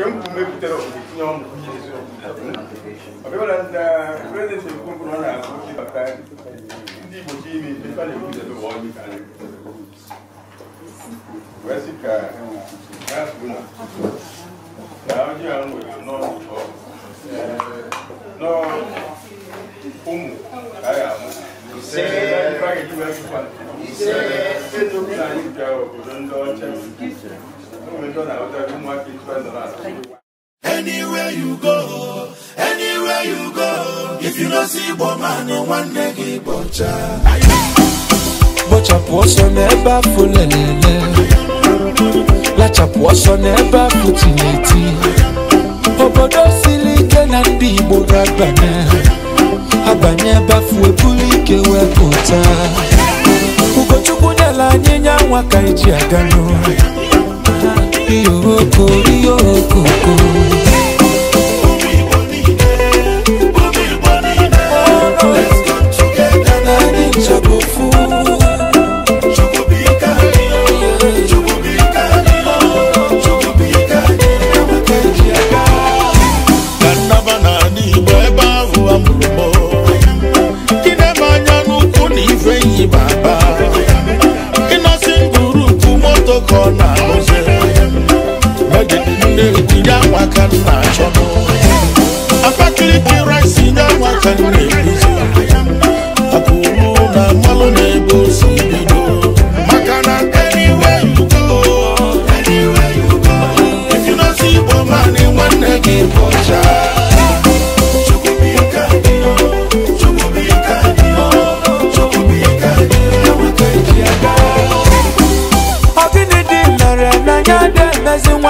nke m bụ mebutere tinye ọmụ ọbịbara na prezident ekwu mkpụrụ ọ na-akụ ịbata ndị igbo chi ime ife na-ekwutere ụwa ọjị ka wee sị ka ha kwuo na na ọjị ahụ nwere n'ọnụ nọọ ụmụ ka a ga-amụ ise ise ise ise ise Anywhere you go, anywhere you go, if you don't see Bomani, one day Bocha. Bocha poso neba fulelele. Lacha poso neba futineti. Obodo silike na ndi Igbo ragbana. Abanye ba fue bulike we pota. Ugochukwu nyala nye nyanwa ka eji agano orí òkò orí òkò kò. con can match your boy. I'm actually rising now, I can make this. Akuna malone bosi bido. Makana anywhere you go, anywhere you go. If you not see woman in one again, boy. amazing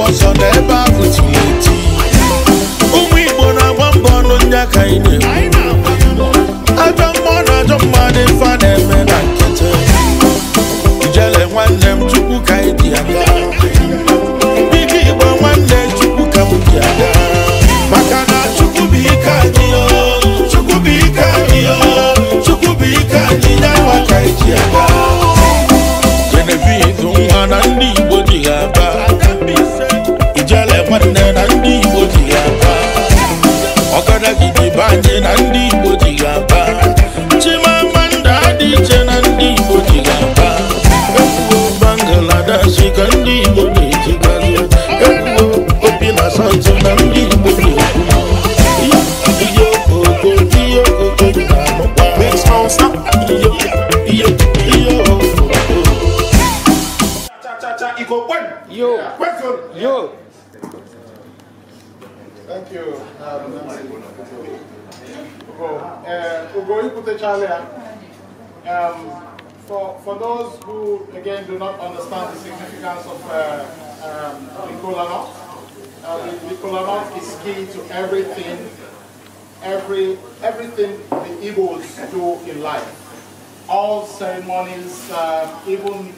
ọsọ na ebe ahụ tiri eti ụmụ Igbo na-agba mbọ ọnụ ndị aka ị iche na ndị Igbo ji ga-aba Chimamanda dị iche na ndị Igbo ji ga-aba Ekwuo Bangladesh ka ndị Igbo na-ejigazi Ekwuo obi na santu na ndị Igbo na-ekwu Iyo okoko, iyo okoko Cha-cha-cha, Igbo kwen! Yo! Kwen zon! Yo! Thank you. Um, Uh, um, for, for those who, again, do not understand the significance of uh, um, nut, uh, nut is key to everything, every, everything the Igbos do in life. All ceremonies, uh, even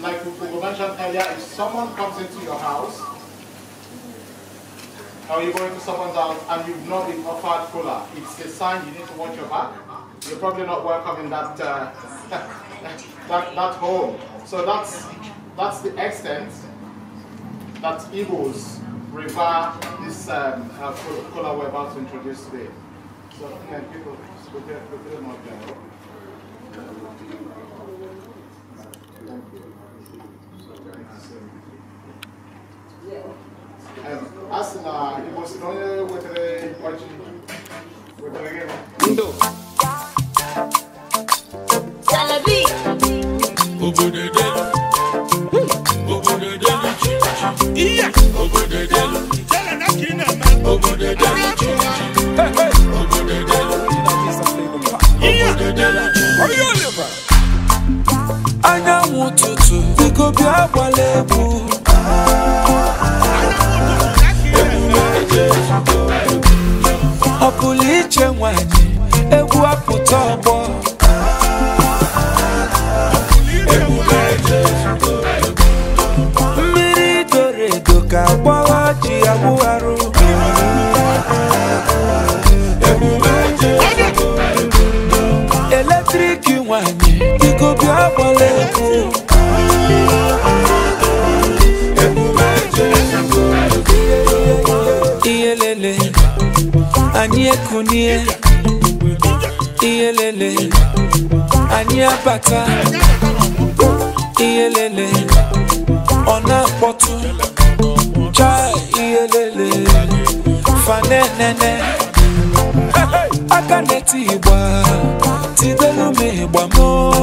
like we mentioned earlier, if someone comes into your house, or you're going to someone's house and you've not been offered cola, it's a sign you need to watch your back. You're probably not welcome in that, uh, that, that home. So that's, that's the extent that Igbos revere this um, uh, cola we're about to introduce today. So, people, Macedonia not you your someone anyekunie iyelele anyabata iyelele ọ̀nà pọ̀tù cha iyelele fanenene akaneti igba tidelumi igba moo.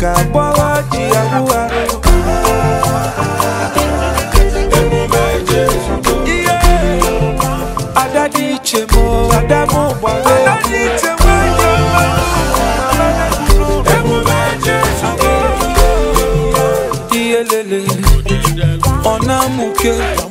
ka bọ́wọ́ jìyàwó wa. emume Jésù tó. adadi chemo adamu gbàgbé. adadi chemo jọba. emume Jésù tó. iyelele ọ̀nà mùkẹ́.